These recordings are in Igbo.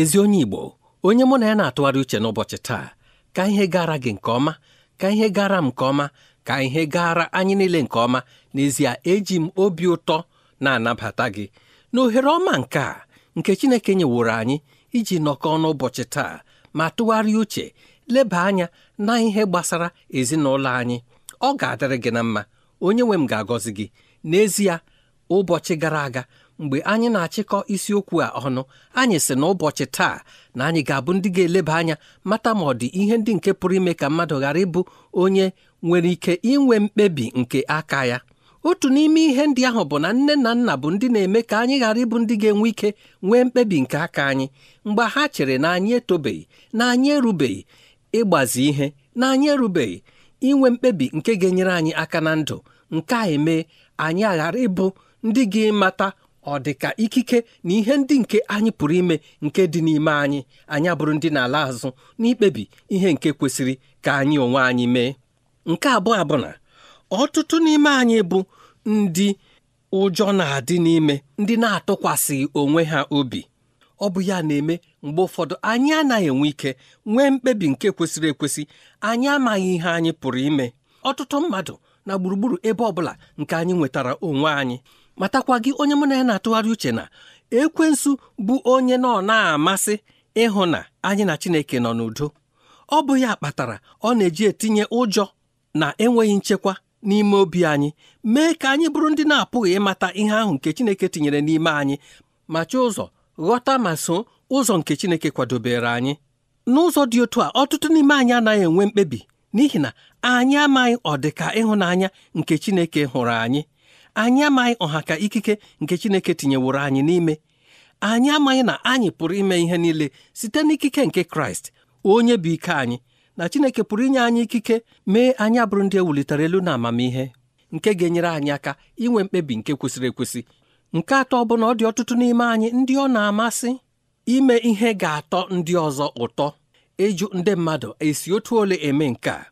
ezi onye Igbo onye mụ na ya na-atụgharị uche n'ụbọchị taa ka ihe gara gị nke ọma ka ihe gara m nke ọma ka ihe gara anyị niile nke ọma n'ezie eji m obi ụtọ na-anabata gị na ohere ọma nke a nke Chineke nyeworo anyị iji nọkọ n'ụbọchị taa ma tụgharịa uche leba anya na ihe gbasara ezinụlọ anyị ọ ga-adịrị gị na mma onye nwe m ga-agọzi gị n'ezie ụbọchị gara aga mgbe anyị na-achịkọ isiokwu a ọnụ anyị sị na ụbọchị taa na anyị ga-abụ ndị ga-eleba anya mata ma ọ dị ihe ndị nke pụrụ ime ka mmadụ ghara ịbụ onye nwere ike inwe mkpebi nke aka ya otu n'ime ihe ndị ahụ bụ na nne na nna bụ ndị na-eme ka anyị ghara ịbụ ndị ga-enwe ike nwee mkpebi nke aka anyị mgbe ha chere na anyị etobeghị na anyị erubeghị ịgbazi ihe na anyị erubeghị inwe mkpebi nke ga-enyere anyị aka na ndụ nke a eme anyị aghara ịbụ ndị ga-emata ọ dị ka ikike na ihe ndị nke anyị pụrụ ime nke dị n'ime anyị anyị abụrụ ndị na-ala azụ n'ikpebi ihe nke kwesịrị ka anyị onwe anyị mee nke abụọ bụ na ọtụtụ n'ime anyị bụ ndị ụjọ na-adị n'ime ndị na-atụkwasịghị onwe ha obi ọ bụ ya na-eme mgbe ụfọdụ anyị anaghị enwe ike nwee mkpebi nke kwesịrị ekwesị anyị amaghị ihe anyị pụrụ ime ọtụtụ mmadụ na gburugburu ebe ọ bụla nke anyị nwetara onwe anyị matakwa gị onye mụ na ya na-atụgharị uche na ekwensu bụ onye nọ na-amasị ịhụ na anyị na Chineke nọ n'udo ọ bụ ya kpatara ọ na-eji etinye ụjọ na enweghị nchekwa n'ime obi anyị mee ka anyị bụrụ ndị na-apụghị ịmata ihe ahụ nke Chineke tinyere n'ime anyị ma chọọ ụzọ ghọta ma so ụzọ nke Chineke kwadobere anyị n'ụzọ dị otu a ọtụtụ n'ime anyị anaghị enwe mkpebi n'ihi na anyị amaghị ọdịka ịhụnanya nke Chineke hụrụ anyị anyị amaghị ọha ka ikike nke Chineke tinyeworo anyị n'ime anyị amaghị na anyị pụrụ ime ihe niile site n'ikike nke Kraịst onye bụ ike anyị na Chineke pụrụ inye anyị ikike mee anya bụrụ ndị ewulitere elu na amamihe nke ga-enyere anyị aka inwe mkpebi nke kwesịrị ekwesị nke atọ bụ na ọ dị ọtụtụ n'ime anyị ndị ọ na-amasị ime ihe ga-atọ ndị ọzọ ụtọ ịjụ ndị mmadụ esi otu ole eme nke a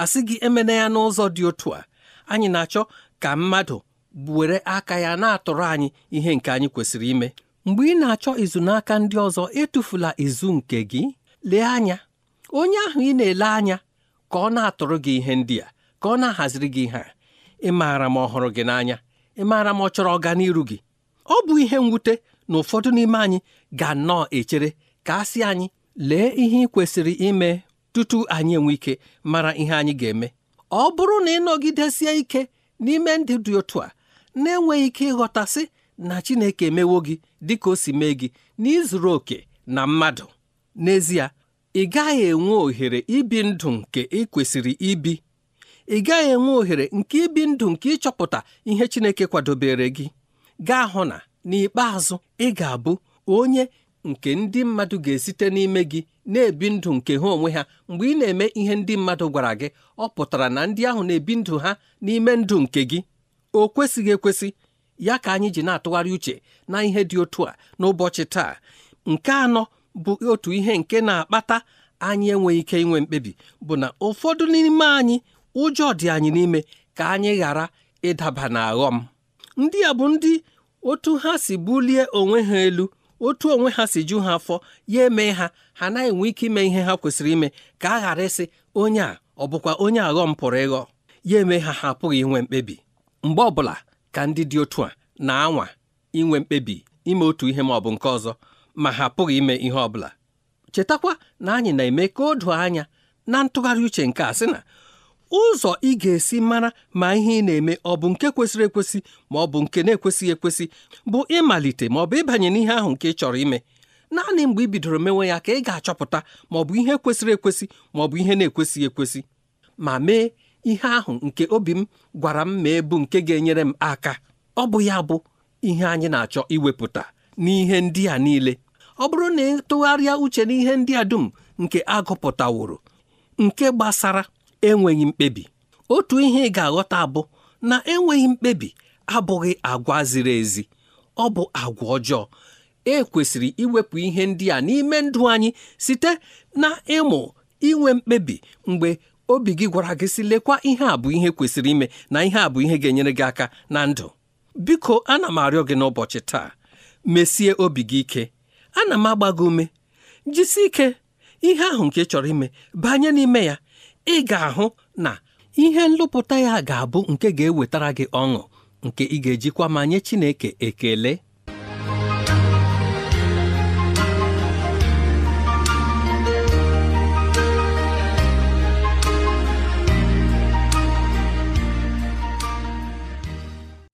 asị gị emena ya n'ụzọ dị otu a anyị na-achọ ka mmadụ were aka ya na-atụrụ anyị ihe nke anyị kwesịrị ime mgbe ị na-achọ izu n'aka ndị ọzọ etufula izu nke gị lee anya onye ahụ ị na-ele anya ka ọ na-atụrụ gị ihe ndị a ka ọ na-ahaziri gị ihe a ị maara ma ọhụrụ gị n'anya ị maara ma ọ chọrọ ọganiru gị ọ bụ ihe mwute na ụfọdụ n'ime anyị ga-anọọ echere ka a sị anyị lee ihe ị kwesịrị ime tutu anyị enwe ike mara ihe anyị ga-eme ọ bụrụ na ị nọgidesie ike n'ime ndị dị otu a na-enweghị ike ịghọtasị na Chineke emewo gị dịka o si mee gị n'izuru oke na mmadụ n'ezie ị gaghị enwe ohere ibi ndụ nke ị kwesịrị ibi ị gaghị enwe ohere nke ibi ndụ nke ịchọpụta ihe Chineke kwadobere gị gaa hụ na n'ikpeazụ ị ga-abụ onye nke ndị mmadụ ga-esite n'ime gị na-ebi ndụ nke ha onwe ha mgbe ị na-eme ihe ndị mmadụ gwara gị ọ pụtara na ndị ahụ na-ebi ndụ ha n'ime ndụ nke gị o kwesịghị ekwesị ya ka anyị ji na-atụgharị uche na ihe dị otu a n'ụbọchị taa nke anọ bụ otu ihe nke na-akpata anyị enweghị ike inwe mkpebi bụ na ụfọdụ n'ime anyị ụjọ dị anyị n'ime ka anyị ghara ịdaba na aghọm ndị a bụ ndị otu ha si bulie onwe ha elu otu onwe ha si ju ha afọ ya eme ha ha naghị enwe ike ime ihe ha kwesịrị ime ka a ghara ịsị onye a ọ bụkwa onye aghọm pụrụ ịghọ ya eme ha ha apụghị inwe mkpebi mgbe ọbụla ka ndị dị otu a na-anwa inwe mkpebi ime otu ihe ma ọ bụ nke ọzọ ma ha pụghị ime ihe ọbụla chetakwa na anyị na-eme ka o doo anya na ntụgharị uche nke a sị na ụzọ ị ga-esi mara ma ihe ị na-eme ọ bụ nke kwesịrị ekwesị ma ọ bụ nke na-ekwesịghị ekwesị bụ ịmalite ma ọ bụ ịbanye n'ihe ahụ nke ị chọrọ ime naanị mgbe ị bidoro mewe ya ka ị ga-achọpụta ma ọ bụ ihe kwesịrị ekwesị ma ọ bụ ihe na-ekwesịghị ekwesị ma mee ihe ahụ nke obi m gwara m ma ebu nke ga-enyere m aka ọ bụ ya bụ ihe anyị na-achọ iwepụta n'ihe ndị a niile ọ bụrụ na ịtụgharịa uche n'ihe ndị a dum nke agụpụtaworo nke gbasara enweghị mkpebi otu ihe ị ga-aghọta bụ na enweghị mkpebi abụghị agwa ziri ezi ọ bụ agwa ọjọọ e kwesịrị iwepụ ihe ndị a n'ime ndụ anyị site na ịmụ inwe mkpebi mgbe obi gị gwara gị si lekwa ihe a bụ ihe kwesịrị ime na ihe a bụ ihe ga-enyere gị aka na ndụ biko ana m arịọ gị n'ụbọchị taa mesie obi gị ike ana m agba gị ume jisi ike ihe ahụ nke chọrọ ime banye n'ime ya ị ga-ahụ na ihe nlụpụta ya ga-abụ nke ga-ewetara gị ọṅụ nke ị ga-ejikwa ma nye Chineke ekele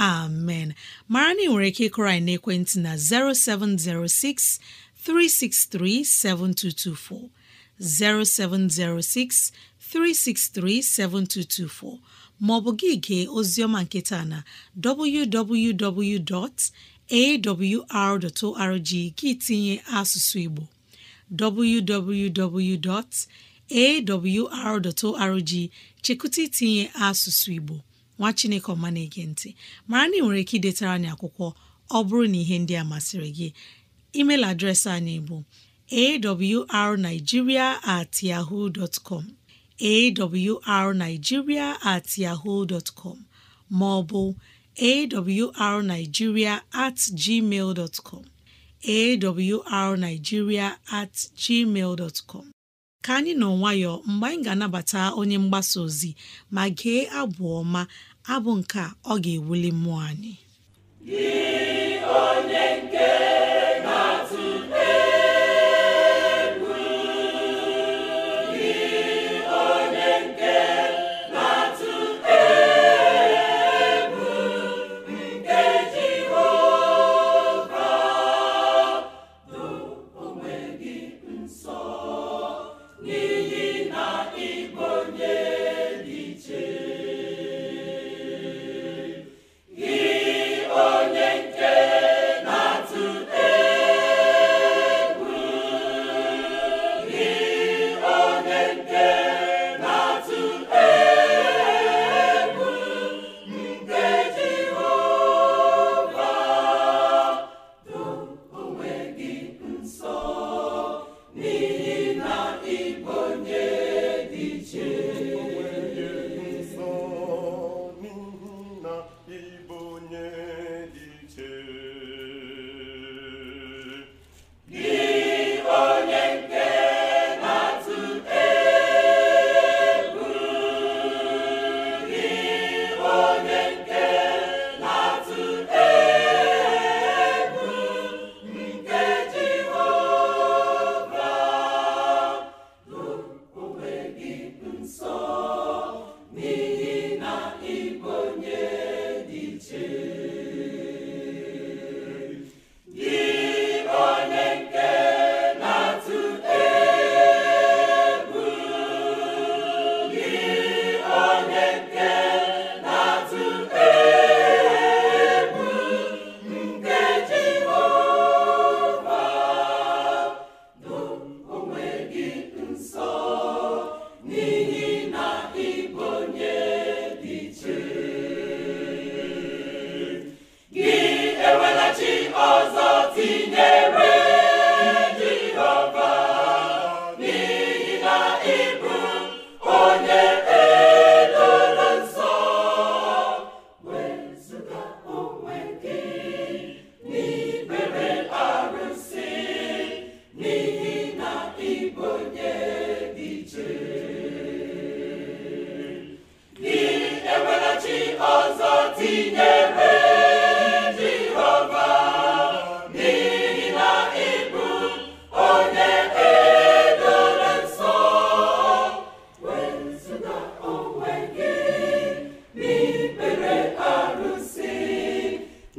amen mara na ị nwere ike ịkụrọ anyị n'ekwentị na 0706 363 7224 0706 363 7224 maọbụ gị gee oziọma nke taa na www.awr.org gị tinye asụsụ Igbo www.awr.org chekụta itinye asụsụ Igbo nwa chineke ọma na-ege ntị mara na ị nwere ike idetara anyị akwụkwọ ọ bụrụ na ihe ndị a masịrị gị email adreesị anyị bụ awrnigeria at yahoo dot com awrnigeria at yahoo dot com ma ọ bụ awrnigeria at gmail dot com at gmail dot ka anyị nọ nwayọọ mgbe anyị ga-anabata onye mgbasa ozi ma gee abụ ọma abụ nke a ọ ga-ewuli mmụọ anyị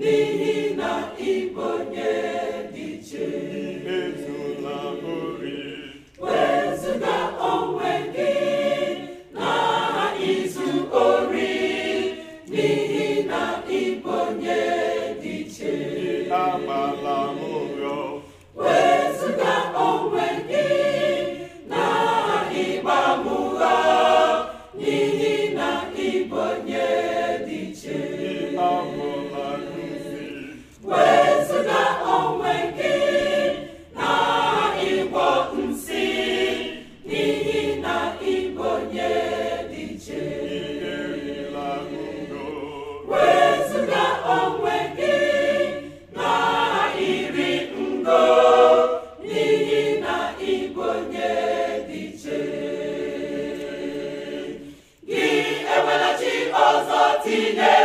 你。tinye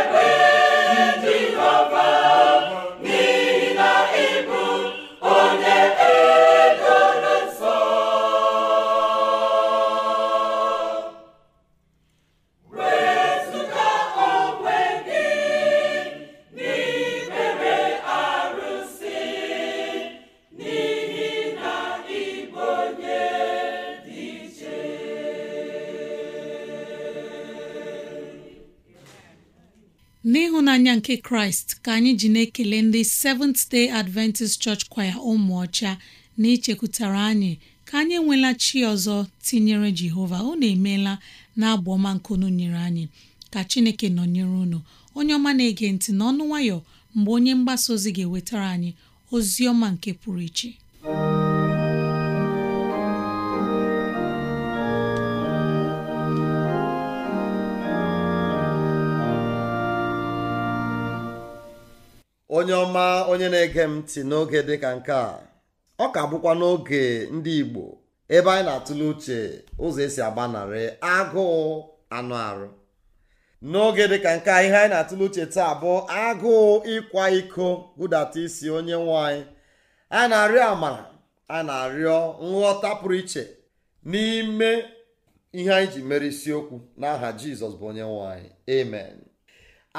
kraịst ka anyị ji na-ekele ndị Seventh Day Adventist Church Choir ụmụ ọcha na ichekwutara anyị ka anyị enwela chi ọzọ tinyere jehova unu emeela na abụ ọma unu nyere anyị ka chineke nọnyere unu onye ọma na-ege ntị n'ọnụ nwayọ mgbe onye mgbasa ozi ga-ewetara anyị ozi ọma nke pụrụ iche onye ọma onye na-ege m ntị n'oge dịka nke a ọ ka bụkwa n'oge ndị Igbo ebe anyị na-atụle uche ụzọ esi agbanarị agụụ anụ arụ n'oge dịka nke a ihe anyị na-atụle uche taa bụ agụụ ịkwa iko budata isi onye nwanyị a na-arịọ amara a na-arịọ nghọta pụrụ iche n'ime ihe anyị ji mere isiokwu n'aha Jizọs bụ onye nwanyị. Emen.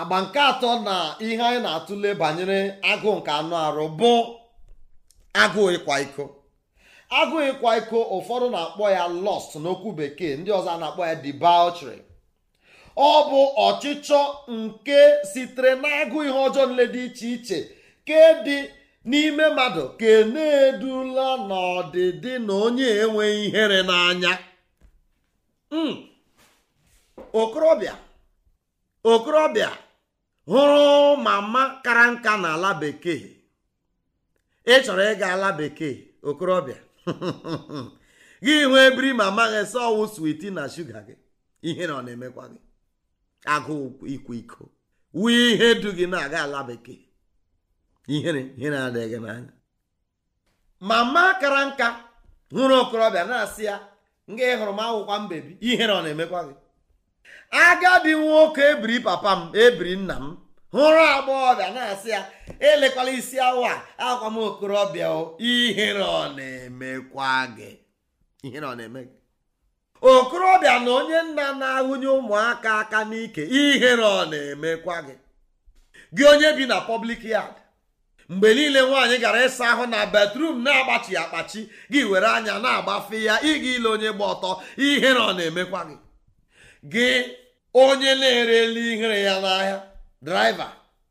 agba nke atọ na ihe anyị na-atụle banyere agụụ nke anụ arụ bụ agụụ ịkwa iko agụụ ịkwa iko ụfọdụ na-akpọ ya lọst n'okwu bekee ndị ọzọ na-akpọ ya debauchery ọ bụ ọchịchọ nke sitere n'agụụ ihe ọjọọ nle dị iche iche ke dị n'ime mmadụ ke na-edula n'ọdịdị na onye enweghị ihere n'anya hmm. okorobịa okorobịa hụrụ mama kara nka na ala bekee ị chọrọ ịga ala bekee okorobịa gị nwee biri mama gị ọwụ switi na shuga gị ihe na ọ na-emekwa gị agụụ ikwu iko wee ihe du gị na-aga ala bekee ihere ihe na n'anya mama kara nka hụrụ okorobịa na-asị ya nga hụrụ m akwụkwa mbebi ihere ọ na-emekwa gị agadi nwoke ebiri papa m ebiri nna m hụrụ agbọghọbịa na-asị ya elekwala isi awa akwa m okorobịa ihere ọ na-emekwa gị gị okorobịa na onye nna na-ahụnye ụmụaka aka n'ike ihere ọ na-emekwa gị gị onye bi na pọblik yad mgbe niile nwaanyị gara ịsa ahụ na batrum na agbachi akpachi gị were anya na-agbafe ya ịga ile onye gba ọtọ ihere ọ na-emekwa gị gị onye na-ere ihere ya n'ahịa Draịva.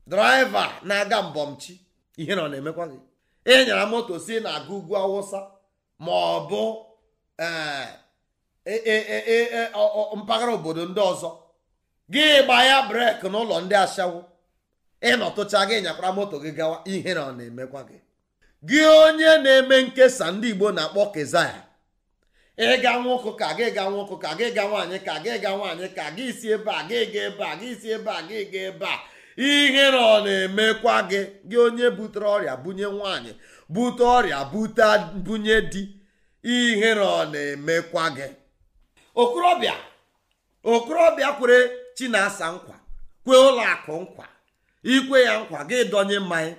Draịva na-aga mbọmchi ihe na ọ na-emekwa gị ịnyara moto si na-aga ugwu awụsa ma ọ bụ eh, eh, eh, mpaghara obodo ndị ọzọ gị gbaya ya breki n'ụlọ ndị ashawo ịnọtụcha gị nyakwara moto gị gawa ihe na ọ na-emekwa gị gị onye na-eme nkesa ndị Igbo na-akpọ kezaya ịga nwa ụkụ ka gị ga nwa ka gị ga nwaanyị ka gị ga nwaanyị ka gị si ebe a gị ga ebe a gị si ebe a gị ga ebe a ihe na ọ na-emekwa gị gị onye butere ọrịa bunye nwaanyị bute ọrịa bute bunye di ihe na ọ na-emekwa gị okorobịa okorobịa kwere chinasa nkwa kwe ụlọ akụ nkwa ikwe ya nkwa gị donye mmanya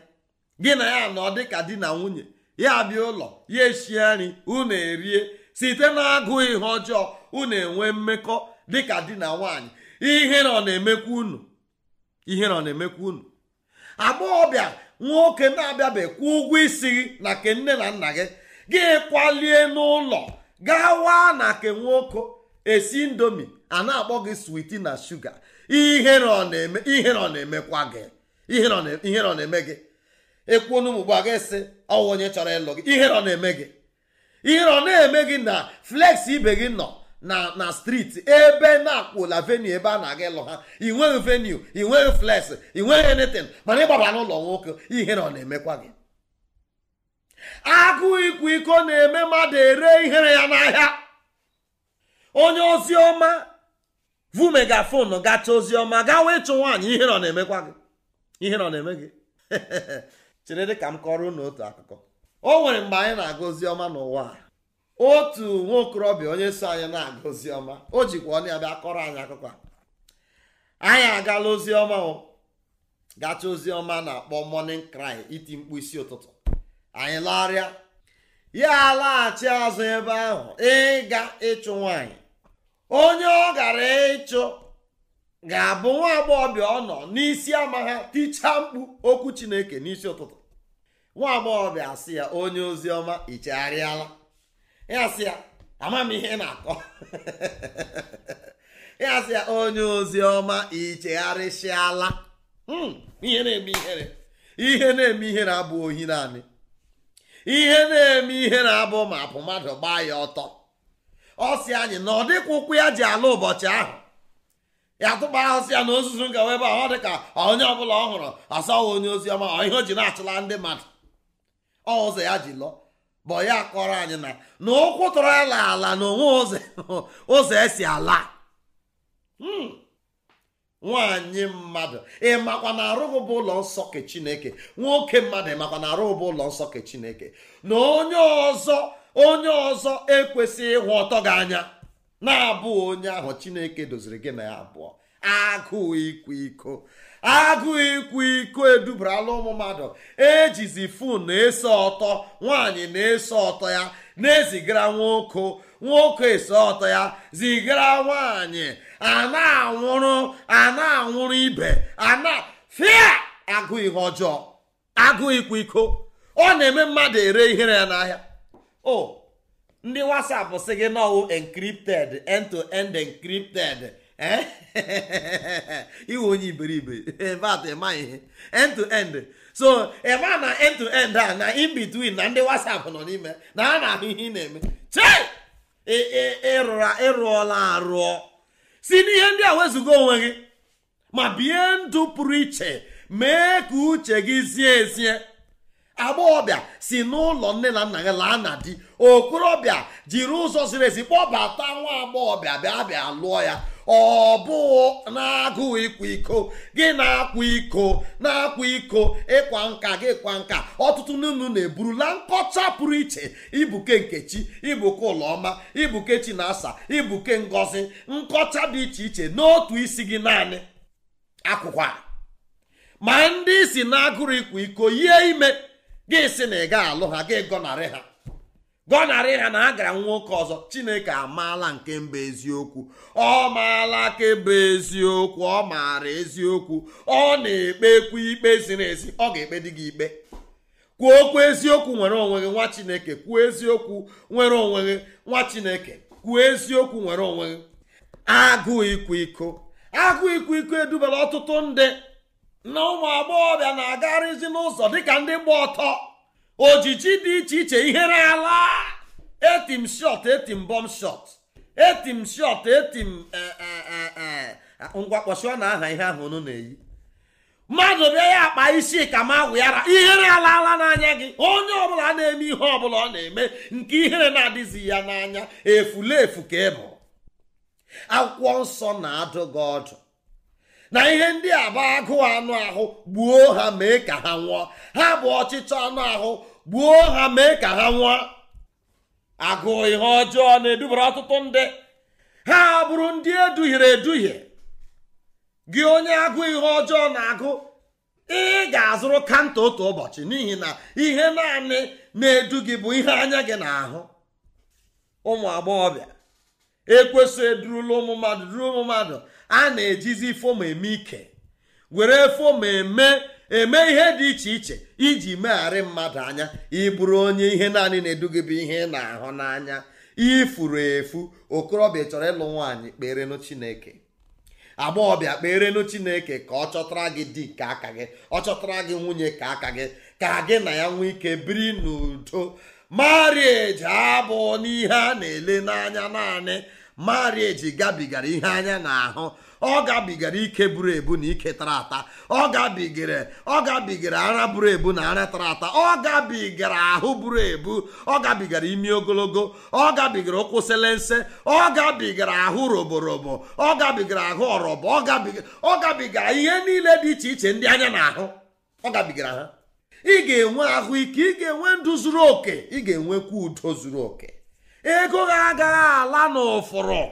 gị na ya nọ dịka di na nwunye ya bịa ụlọ ya eshie nri unu erie site na-agụ ihe ọjọọ unu enwe mmekọ dịka di na nwanyị ihe na ọ na-emekwa unu ihe na ọ na-emekwa unu agbọghọbịa nwoke na-abịabe kwụ ụgwọ isi gị na ke nne na nna gị gị kwalie n'ụlọ gawa na ke nwoke esi ndomi a na-akpọ gị switi na shuga ihe na ọ na-eme ihe na ọ na-emekwa gị ihe na ọ na-eme gị ekwuo n'ụmụ gba gị sị ọwụ onye chọrọ ịlụ gị ihe na ọ na-eme gị ihe ọ na-eme gị na flex ibe gị nọ na na streeti ebe na-akwụla venue ebe a na-aga ịlụ ha ị nweghị venue ị nweghị flex ị nweghị anything mana ịgbaba n'ụlọ nwoke ihe na ọ na-emekwa gị akụ ịkwa iko na-eme mmadụ ere ihere ya n'ahịa onye ozi ọma vu megafon gacha ozi ọma gawa ịchụ nwaanyị ihe na ọ na-emekwa gị ihe ọ na-eme gị chere dị ka m kọrọ unu otu akụkọ o nwere mgbe anyị na-aga ọma n'ụwa otu nwaokorobịa onye so anyị na-aga ọma, o jikwa onye ya kọrọ anyị akụkọ anyị agala oziọma o gacha oziọma na-akpọ morning cry iti mkpu isi ụtụtụ anyị larịa ya laghachi azụ ebe ahụ ịga ịchụ nwanyị onye ọ gara ịchụ ga-abụ nwa agbọghọbịa ọ nọ n'isi ama ha tichaa mkpu okwu Chineke n'isi ụtụtụ nwa agbọghọbịa asị ya onye ozi ọma ichegharịala ya sị ya ama m ihe ị na-akọ ya sị ya onye ozi ọma ichegharịsịala hmm, ihe na-eme ihere ihe na-eme ihere abụ ohi naanị ihe na-eme ihere abụ ma apụ mmadụ gbaa ya ọtọ ọ sị anyị na ọ dịkwa ụkwụ ya ji ala ụbọchị ahụ ya tụkpa ahụsị ya na ozuzu ngawa ebe a ọ dị ka onye ọbụla ọ hụrụ asaghị onye ozi ọma ihe o ji na-achụla ndị mmadụ ọzọ ya ji lụọ bụ ya kọrọ anyị na na ụkwụ tọrọ ya ala na onwe ụzọ esi ala hmm. nwanyị mmadụ makwa na arụghị bụ ụlọ nsọ ke chineke nwoke mmadụ ịmakwa na arụghị bụ ụlọ nsọ ke chineke na onye ọzọ onye ọzọ ekwesịghị ịhụ ọtọ gị anya na-abụ onye ahụ chineke doziri gị na ya abụọ agụụ ikwa iko agụ ịkwa iko edubarala ụmụ mmadụ ejizi fon eso ọtọ nwaanyị na eso ọtọ ya na-ezigara nwoke nwoke ese ọtọ ya zigara nwaanyị a na-anwụrụ a anwụrụ ibe ana fia agụ ihe ọjọọ agụ ịkwa iko ọ na-eme mmadụ ere ihere ya n'ahịa o ndị WhatsApp si gị na ọwụ end to iwe onye iberibe vat ịma ihe end to end so ịma na end to end a na in between na ndị whatsapp nọ n'ime na a na-ahụ ihe ị na-eme ịrụọla arụọ si n'ihe ndị a wezụga onwe gị ma bie ndụ pụrụ iche mee ka uche gị zie ezie agbọghọbịa si n'ụlọ nne na nna ya laa na di okorobịa jiri ụzọ ziri ezi kpọbata nwa agbọghọbịa bịa bịa lụọ ya ọ bụ na-agụụ ịkwa iko gị na-akwa iko na-akwa iko ịkwa nka gị kwa nka ọtụtụ n'unu na-eburula nkọcha pụrụ iche ibuke nkechi ibuke ụlọma ibuke chinasa ibuke ngozi nkọcha dị iche iche n'otu isi gị naanị akwụkwọ ma ndị si na-agụrụ ịkwa iko yie ime gị si na ị ga alụ ha gị gọnarị ha gọnarị ha na ha gara nwoke ọzọ chineke amaala nke mba eziokwu ọ maala kemba eziokwu ọ maara eziokwu ọ na-ekpekwu ikpe ziri ezi ọ ga-ekpe dị gị ikpe kwuo okwu eziokwu nwere onwe gị nwa chineke kwuo eziokwu nwere onwe gị nwa chineke kwuo eziokwu nwere onwe gị agụụ ịkwa iko agụụ ikwu iko edubala ọtụtụ ndị na ụmụ agbọghọbịa na-agarịzi n'ụzọ dịka ndị gba ọtọ ojiji dị iche iche ihere ala etim shot etim bọm shot etim shot etim e, e, e, ngwakpọchịọ na aha ihe ahụ unu na-eyi mmadụ bịa ya akpa isi ka ma agwụ ihere ala ala n'anya gị onye ọbụla na-eme ihe ọbụla ọ na-eme nke ihere na-adịzi ya n'anya efu ka ịbụ akwụkwọ nsọ na-adụ gị ọdụ na ihe ndị a bụ agụụ anụ ahụ gbuo ha mee ka ha nwụọ ha bụ ọchịchọ anụ ahụ gbuo ha mee ka ha nwụọ agụ ihe ọjọọ na-edubara ọtụtụ ndị ha bụrụ ndị eduhiere eduhie gị onye agụ ihe ọjọọ na-agụ ị ga-azụrụ kanta otu ụbọchị n'ihi na ihe naanị na-edu gị bụ ihe anya gị na-ahụ ụmụ agbọghọbịa ekwesị edurula ụmụ mmadụ duru ụmụ mmadụ a na-ejizi fom eme ike were fom eme eme ihe dị iche iche iji megharị mmadụ anya ịbụrụ onye ihe naanị na-eduga bụ ihe na-ahụ n'anya ifuru efu okorobịa chọrọ ịlụ nwaanyị kperenụ chineke agbọghọbịa kperenụ chineke ka ọ chọtara gị di ka aka gị ọ chọtara gị nwunye ka aka gị ka gị na ya nwee ike biri n'udo marieji abụ n'ihe a na-ele n'anya naanị marieji gabigara ihe anya na-ahụ ọ gabigara ike buru ebu na ike tara ata ọ gabigara ọ gabigara ara buru ebu na ara tara ata ọ gabigara ahụ buru ebu ọ gabigara imi ogologo ọ gabigara ụkwụ nse ọ gabigara ahụ roborobo ọ gabigara ahụ ọrọbọ ọ gabigara ihe niile dị iche iche ndị anya na-ahụ ọ gabigara ha ị ga-enwe ahụike ị ga-enwe ndụ zuru oke ị ga-enwekwa udo zuru oke ego ha agaghị ala n'ụfụrụ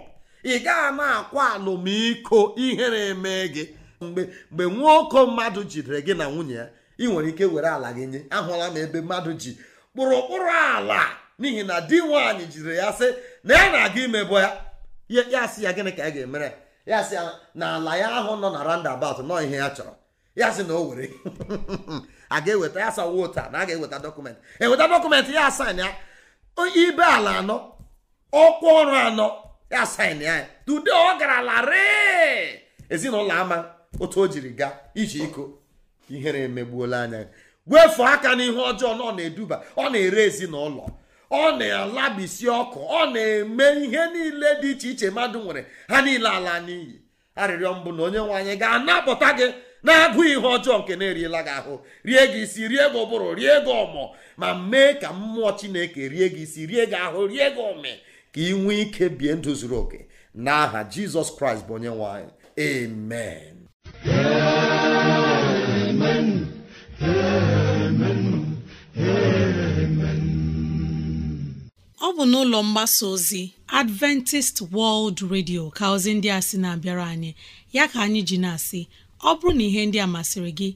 ị gaghị na-akwa alụmiko ihere eme gị mgbe mgbe nwoko mmadụ jidere gị na nwunye ya ị nwere ike were ala gị nye ahụla m ebe mmadụ ji kpụrụkpụrụ ala n'ihi na di nwaanyị jidere ya sị na ya na-aga imebo ya ya sị ya gịnị ka ya ga-emere ya sị na ala ya ahụ nọ na roundabout nọ ihe ya chọrọ ya sị na o were a ga-eweta ya sa wota na a ga-eweta dọkụmentị eweta dọkụmentị ya asan ya onye ibe ala anọ ọkwa ọrụ anọ ya sain ya dude ọ gara larịị ezinụlọ ama otu o jiri gaa iji iko ihere emegbuola anya wefuo aka n'ihe ọjọọ na ọ na-eduba ọ na-ere ezinụlọ ọ na-alabisi ọkụ ọ na-eme ihe niile dị iche iche mmadụ nwere ha niile ala n'iyi arịrịọ mbụ na onye nwe anyị ga-anapụta gị na-abụ ihe ọjọọ nke na-eriela gị ahụ rie gị isi rie gị ụbụrụ rie gị ọmọ ma mee ka mmụọ chineke rie gị isi rie gị ahụ rie gị ome ka ị nwee ike bie ndụ zuru oke n'aha jizọs kraịst bụ onye nwe amen amen amen ọ bụ n'ụlọ mgbasa ozi adventist world radio ka ozi ndị a sị na-abịara anyị ya ka anyị ji na-asị ọ bụrụ na ihe ndị a masịrị gị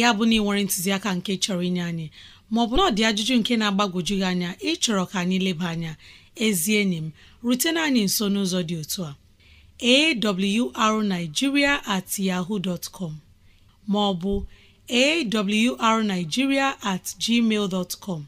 ya bụ na ị nwere ntụziaka nke chọrọ inye anyị maọbụ na ọ dị ajụjụ nke na-agbagwoju gị anya ịchọrọ ka anyị leba anya ezi enyi m rutena anyị nso n'ụzọ dị otu a awrnigeria at yahoo dot com maọbụ awrnigeria at gmail dot com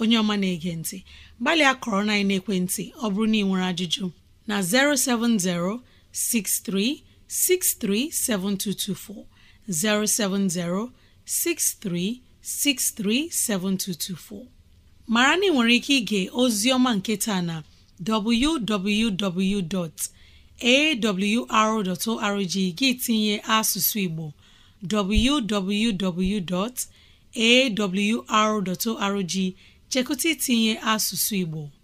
onye ọma na-ege ntị gbalịa kọrọ na ekwentị ọ bụrụ na ị nwere ajụjụ na 070 63 637224 070 63637224 mara na ị nwere ike ige ozi ọma nketa na www.awr.org gị tinye asụsụ Igbo www.awr.org chekụta itinye asụsụ Igbo